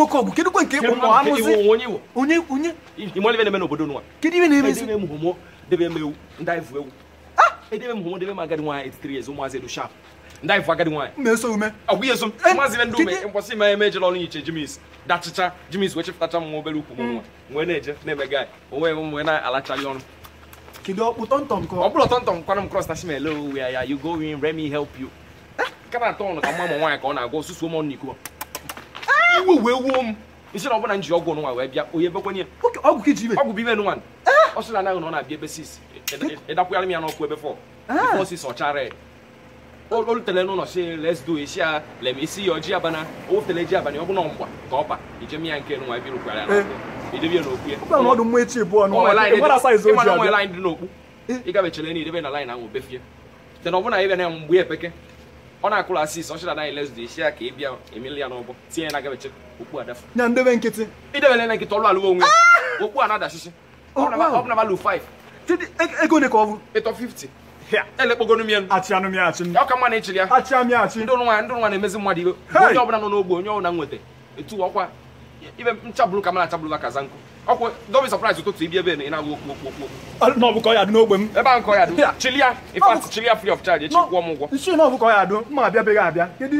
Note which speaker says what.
Speaker 1: nwoke ọgụ kedu kwe nke ịkpụ mụ amụzi onye onye imolive na-eme n'obodo nwa kedu ihe na-emezi edebe m homo debe m ewu ndị anyị vu ewu edebe m homo debe m agadi nwaanyị 83 years ụmụazị edo shap ndị anyị vu agadi nwaanyị na-eso ume ọgwụ ihe som ụmụazị ibe ndị ume mkwasị ma eme ejela ọrụ nyiche jimis dachicha jimis wee chefụtacha m obere ukwu m nwa nwee na-eje na-eme gaị onwe m wee na-alachali ọrụ kedu ọkpụ tọntọm kọ ọ bụrụ tọntọm kwana m kros na shimele owu ya ya you go in na-agwa osusu ụmụ ọnụ n'iko iwe wee wuo m nsi na ọbụna nji ọgwụ nwa wee bịa onye ebekwa nye ọgwụ ka iji ibe ọgwụ bụ ibe nwa ọ sị na anaghị na ọ na-abịa ebe sis ịdakwụgharị e, e, e, m ya n'ọkụ ebe fọ bifọ sis ọchara olutere n'ụlọ si les do esi ya lem esi ya ọjị abana owefutele ji abana ọ bụ na mgba ka ọ ba ijem ya nke nwa ebe rụkwara ya n'ọkụ idebe ya n'okwu ya ịgabechere na idebe na lain ahụ befie te na ọ bụna ebe na ya mgbe epeke ọ na-akụrụ asị isi ọchịra anyị ka ị bịa emeli ya n'ọgbọ tinye ya na gabeche okpu adafa na ndebe nkịtị idebele na nkịtị ọlụ alụ onwe ah! okpu a na-adachịchị ọ bụla 5 ego ole ka ọ bụ ịtọ 50 mma na ịchịrị ya ndị na-emezi mmadụ iwe onye ọbụla nọ n'ogbe onye ọbụla nweta etu ọkwa ibe nchabulu ka mara achabulu aka zanku ọkwụ dobi sọpraịz ụtụtụ ibi ebe na-agụ okwu okwu okwu na ọbụkọ ya dị n'ogbe m ebe ahụ kọ ya in fact chili ya free of charge echi kwụọ m ụgwọ nsi na ọbụkọ ya dị mma abịa beghị abịa kedu